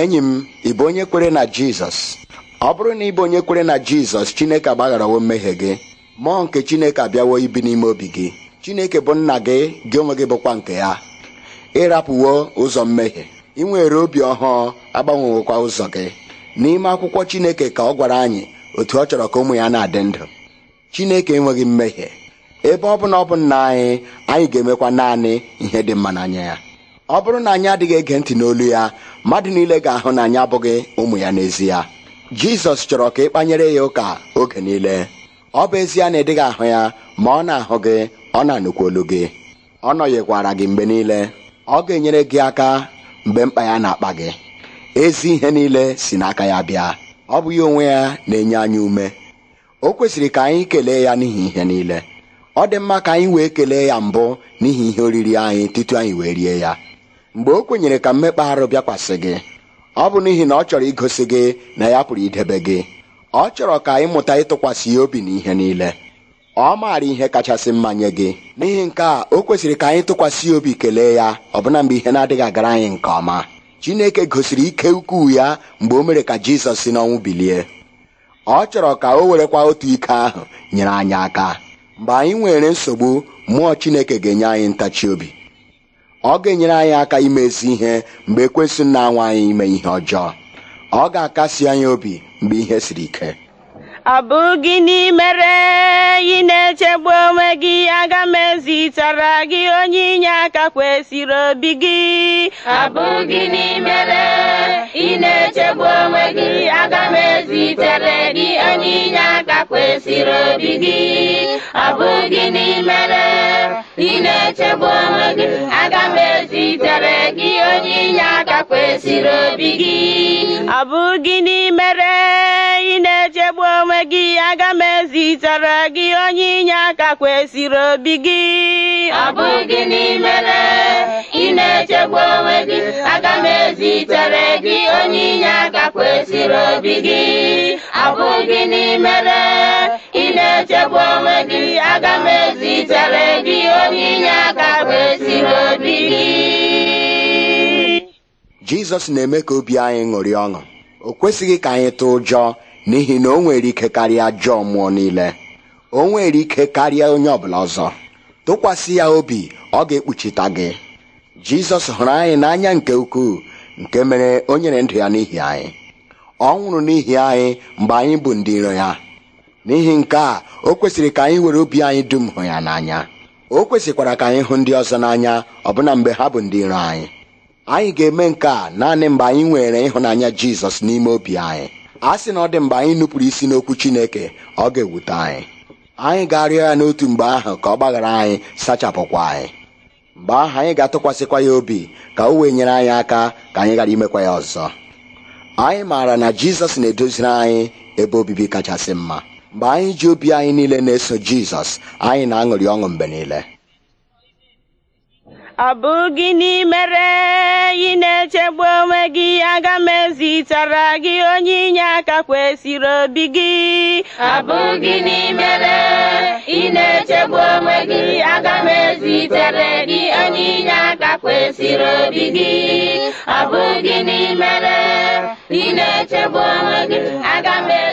enyi m ị bụ onye kwere na jizọs ọ bụrụ na ị bụ onye kwere na jizọs chineke agbagharawo mmehie gị mmụọ nke chineke abịawo ibi n'ime obi gị chineke bụ nna gị gị onwe gị bụkwa nke ya ịrapụwo ụzọ mmehie ị nwere obi ọhụụ agbanwewokwa ụzọ gị n'ime akwụkwọ chineke ka ọ gwara anyị otu ọ chọrọ ka ụmụ ya na-adị ndụ chineke enweghị mmehie ebe ọ bụla ọ bụ nna anyị anyị ga-emekwa naanị ihe dị mma n'anya ya ọ bụrụ na anyị adịghị ege ntị n'olu ya mmadụ niile ga-ahụ na anyị abụghị ụmụ ya n'ezie jizọs chọrọ ka ị kpanyere ya ụka oge niile ọ bụ ezie na ị ahụ ya ma ọ na-ahụ gị ọ na anukwu olu gị ọ nọghịkwara gị mgbe niile ọ ga-enyere gị aka mgbe mkpa ya na-akpa gị ezi ihe niile si n'aka ya bịa ọ bụ ya onwe ya na-enye anyị ume o kwesịrị ka anyị kelee ya n'ihi ihe niile ọ dị mma ka anyị wee kelee ya mbụ n'ihi ihe oriri anyị tutu anyị wee rie ya mgbe o kwenyere ka mmekpa arụ bịakwasị gị ọ bụ n'ihi na ọ chọrọ igosi gị na ya pụrụ idebe gị ọ chọrọ ka ịmụta ịtụkwasị ya obi ihe niile ọ maara ihe kachasị mma nye gị n'ihi nke a o kwesịrị ka anyị tụkwasị obi kelee ya ọbụna mgbe ihe na-adịghị agara anyị nke ọma Chineke gosiri ike ukwuu ya mgbe o mere ka Jizọs si n'ọnwụ bilie ọ chọrọ ka o werekwa otu ike ahụ nyere anyị aka mgbe anyị nwere nsogbu mmụọ Chineke ga-enye anyị ntachi obi ọ ga-enyere anyị aka ime ezi ihe mgbe ekwesị na-anwa anyị ime ihe ọjọọ ọ ga-akasi anyị obi mgbe ihe siri ike ọ bụ gịnị mere ị na-echegbu onwe gị aga m ezitara gị onye inye aka kwesịrị obi gị ọ bụ gịnị ị na-echegbu onwe gị aga m ezitere gị onye inye aka kwesịrị obi gị ọ bụ gịnị ị na-echegbu onwe gị aga m ezitere gị onye inye aka kwesịrị obi gị ọ bụ ị na-echegbu onwe gị aga m ezitere gị onye inye aka kwesịrị obi gị ọ bụ gịnị ị na-echegbu onwe gị aga m ezitere gị onye inye aka kwesịrị obi gị ọ bụ gịnị ị na-echegbu onwe gị aga m ezitere gị onye inye aka kwesịrị obi gị jizọs na-eme ka obi anyị ṅụrị ọṅụ o kwesịghị ka anyị tụ ụjọ n'ihi na o nwere ike karịa ajọ mmụọ niile o nwere ike karịa onye ọbụla ọzọ tụkwasị ya obi ọ ga-ekpuchita gị jizọs hụrụ anyị n'anya nke ukwuu nke mere o nyere ndụ ya n'ihi anyị ọ nwụrụ n'ihi anyị mgbe anyị bụ ndị iro ya n'ihi nke a o kwesịrị ka anyị were obi anyị dum hụ ya n'anya o kwesịkwara ka anyị hụ ndị ọzọ n'anya ọbụna mgbe ha bụ ndị iro anyị anyị ga-eme nke a naanị mgbe anyị nwere ịhụnanya jizọs n'ime obi anyị a sị na ọ dị mgbe anyị nupụrụ isi n'okwu chineke ọ ga-ewute anyị anyị ga-arịọ ya n'otu mgbe ahụ ka ọ gbaghara anyị sachapụkwa anyị mgbe ahụ anyị ga-atụkwasịkwa ya obi ka o wee nyere anyị aka ka anyị ghara imekwa ya ọzọ anyị maara na jizọs na-edoziri anyị ebe obibi kachasị mma mgbe anyị ji obi anyị niile na-eso jizọs anyị na-aṅụrị ọṅụ mgbe niile ọ bụ gịnị mere ị na-echegbu onwe gị aga m ezitara gị onye inye aka kwesịrị obi gị ọ bụ gịnị mere aga m ezitere gị onye inye aka kwesịrị obi gị ọ bụ gịnị mere ị na-echegbu onwe gị aga m